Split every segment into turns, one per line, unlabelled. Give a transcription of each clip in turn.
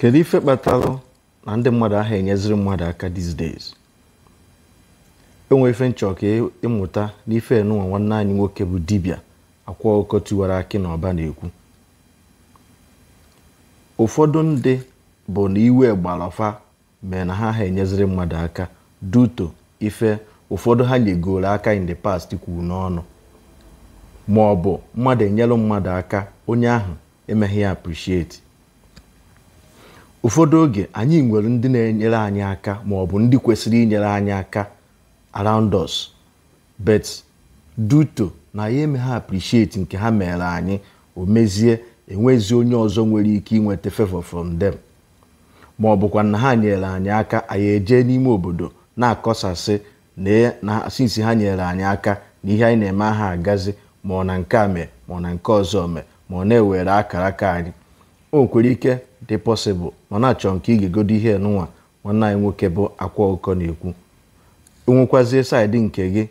kedu ife kpatara na ndị mmadụ ahụ enyeziri mmadụ aka these days enwere ife nchọ ka e ịmụta n'ife nwanne anyị nwoke bụ dibịa akwa ọkọ tiwara akị na ọba na-ekwu ụfọdụ ndị bụ na iwe gbarafa mee na ha ha enyeziri mmadụ aka duto ife ụfọdụ ha nyegoro aka in the past kwuru n'ọnụ ma ọ bụ mmadụ enyere mmadụ aka onye ahụ emeghị ya appreciate ụfọdụ oge anyị nwere ndị na-enyere anyị aka ma ọ bụ ndị kwesịrị inyere anyị aka around us but duto na ya eme ha appreciate nke ha mere anyị o mezie enwezi onye ọzọ nwere ike inweta favor from them ma ọ bụkwa na ha nyere anyị aka anyị ejee n'ime obodo na-akọsasị na e, sinsi ha nyere anyị aka na ihe anyị na-eme aha agazi ma ọ na nke a mee ma ọ na nke ọzọ mee ma ọ na-ewere akara aka anyị o ike dị pọsịbụl ma na-achọ nke ị ga-egodo ihe nụnwa nwanne anyị nwoke bụ akwa ụkọ na-ekwu nwekwazie saịdị nke gị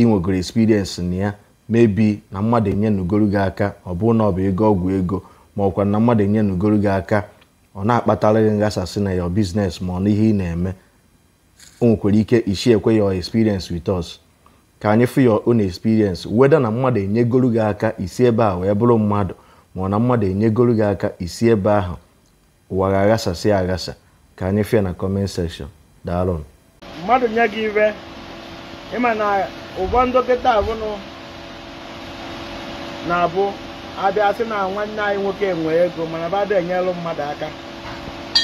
inwegoro experience na ya mebi na mmadụ enye nugoro gị aka ọ bụ na ọ bụ ego ọgwụ ego ma ọkwa na mmadụ enye nugoro gị aka ọ na-akpatara gị nghasasị na ya biznes ma ọ n'ihe ị na-eme o ike ishi ekwe ya experience with us ka anyị fụ ya on experience weda na mmadụ enyegoro gị aka isi ebe a wee bụrụ mmadụ na mmadụ enyegoro gị aka isi ebe ahụ ụwa ga-aghasasị aghasa ka anyị fịa na kọment sekshọn daalụ
mmadụ nye gị iwe ịma na ụbọ ndokịta abụnụ na-abụ abịa sị na nwanne anyị nwoke nwe ego mana ba da enyelụ mmadụ aka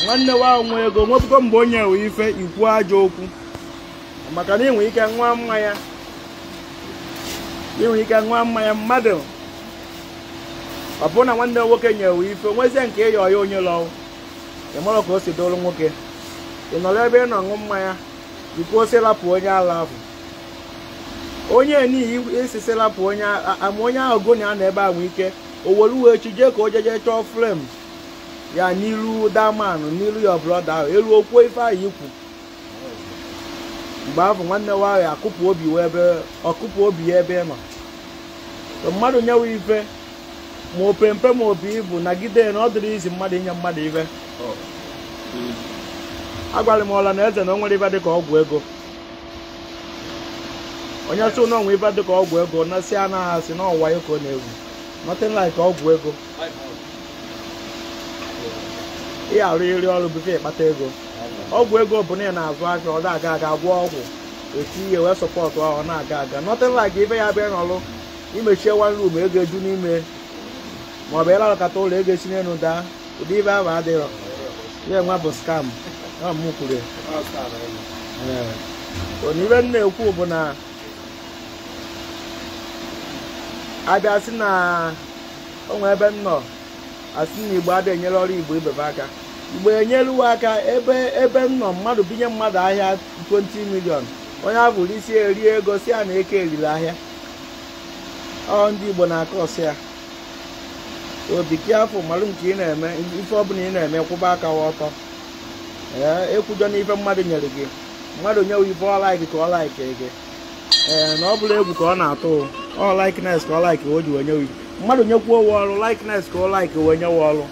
nwanne wa nwe ego nwepụta mgbe onye nwe ife ikwu ajọ okwu maka na ị nwere ike nwa mmanya ị nwere ike nwa mmanya mmadụ ọ bụrụ na nwanne nwoke nyewe ife nwezie nke ịyọ ya onye lọwụ ị mara ka o si dolu nwoke ị nọrọ ebe ị nọ ṅụ mmanya jikwa ose onye ala ahụ onye n'ihi isi selapụ onye ama onye ahụ goni a na ebe ahụ ike o were uwe chi jee ka o jeje chọọ flem ya n'iru daman n'iru ya brọda ahụ elu okwuo ife ahụ ikwu mgbe ahụ nwanne nwaanyị akụpụ obi ya ebe kụpụ obi ya ebe ị nọ mmadụ nyewe ife ma opempe ma opi ibu nagide na ọ dịrị izi mmadụ inye mmadụ ibe oh. agwara m ọla na eze na o nwere ibe ka ọgwụ ego onye sị na onwe dị ka ọgwụ ego na si anaghị asị na ọwa ka ọ na-ewu nothing ka ọgwụ ego ị arụ iri ọrụ bụfe ịkpata ego ọgwụ ego bụ na ị na-azụ aka ọ na-aga aga gwọ ọgwụ eti ihe wee sọpọtụ ọ na-aga aga nothing ibe ya bịa n'ọrụ imechie one room ego eju n'ime ma ọ bụ ịla ọkata ụlọ ego esi n'elu daa ụdị ibe ahụ adịghị nwa bụ skam na m kwuru m na-ekwu bụ na abịa sị na onwe ebe m nọ asị na igbo abịa enyere ọrụ igbo ibebe aka igbo enyere uwe aka ebe ebe m nọ mmadụ binye mmadụ ahịa 20 milion onye abụrụ isi eri ego si ya na eke erila ahịa ọ ndị igbo na-akọ ya obi ka afọ mara nke ị na-eme ife ọbụla ị na-eme kwụba aka ọtọ ee ekwudo n'ife mmadụ nyere gị mmadụ nyewe ife ọlaiki ka ọlaiki gị ee na ọ bụla egwu ka ọ na-atụ ọ laiknes ka ọ laiki o ji wee nyewe mmadụ nyekwuo owe ọrụ laiknes ka ọ laiki wee nyewe ọrụ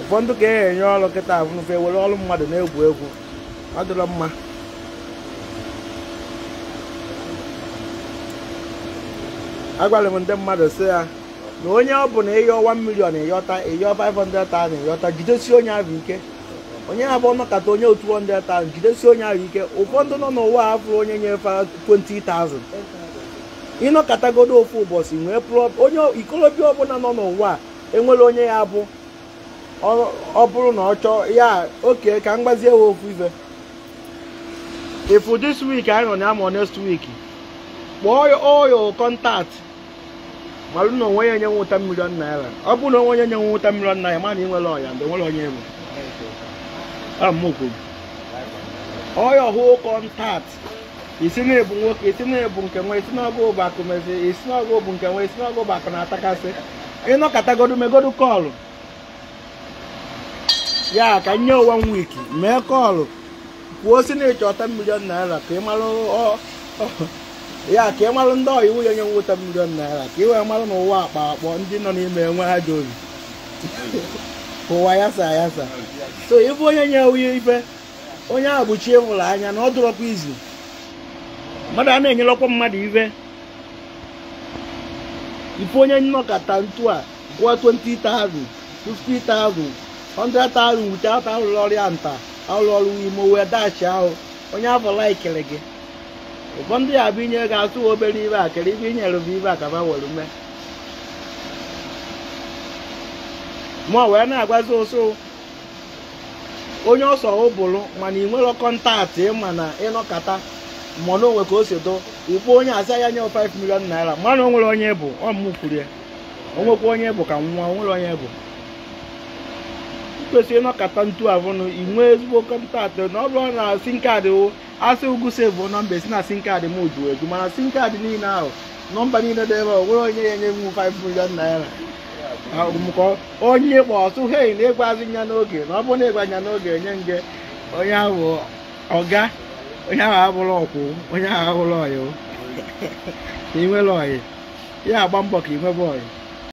ụfọdụ ka e enye ọrụ kịta e were ọrụ mmadụ na-egwu egwu ọ dịrọ mma agwara m ndị mmadụ sị ya na onye ọ na ịyọ 1 million ịyọta ịyọ 500,000 ịyọta jidesi onye ahụ ike onye abụọ nọkata onye otu 200,000 jidesi onye ahụ ike ụfọdụ nọ n'ụwa afọ onye nyefe 20,000 ịnọkọtagodo ofu ụbọchị nwee prọb onye ikolobịa ọbụla nọ n'ụwa enwere onye ya bụ ọ bụrụ na ọ chọọ ya oke ka m gbazie we ofu ife ifu this week anyị nọ na amọ next week kpọọ oyo contact marụ na onwe ya nye nwụta milion naira ọ bụrụ na onwe ya nye nwụta milion naira ma ah, na ị nwere ọya ndị nwere onye enwe ọya ọhụ kọntaktị isi na-ebu nwoke isi na-ebu nke nwe isi n'ọgụ bụ akụ mezi isi n'ọgụ bụ nke nwe isi n'ọgụ bụ na-atakasị ịnọkọtagodu megodu kọlụ ya ka nye onwe m wiki mee kọlụ kwuo si na ịchọta milion naira ka ị ọ. ya ka ị marụ ndị ọyị iwu ya onye nwụta milion naira ka ị wee marụ na ụwa akpa akpọ ndị nọ n'ime enwe ha ji obi ụwa yasa yasa so ịbụ onye nye onye ife onye ahụ bụchi ịfụrụ anya na ọ dụrọkwa izu mmadụ a na-enyelọkwa mmadụ ibe ife onye nnọkọta ntu a gụọ 20,000 50,000 100,000 wute ata arụrụ ọrịa nta arụrụ ọrụ imo wee dachi ahụ onye afọ laikiri gị ụfọ ndị a bụ inye ga-asụ obere ibe a kere ibe inyere bụ ibe a ka were ume ma wee na-agwazi ụsụ onye ọsọ ụbụrụ mana ị nwere kọntaktị ịma na ịnọkata mmanụ onwe ka o si do ikwu onye asa ya nye 5 milion naira mana o nwere onye bụ ọmụ o nwekwa onye bụ ka nwa o nwere onye bụ kwesịrị ịnọkọta ntu avụnụ inwe ezigbo kọntaktị na ọ bụrụ na sin kaadị asị ugwu sevụ nọmba esi na sin kaadị m ju eju mana sin kaadị niile ahụ nọmba niile dị ebe ọ onye ya enye m 5 million naira mụkọ onye kpọ ọsụ hei na ịgwazi nya n'oge na ọ bụrụ na ịgwa nya n'oge enye nge onye ahụ ọga onye
ahụ abụrụ ọkwụ onye ahụ abụrụ ọyị ị nwere ọyị ya agba mbọ ka ị nwebe ọyị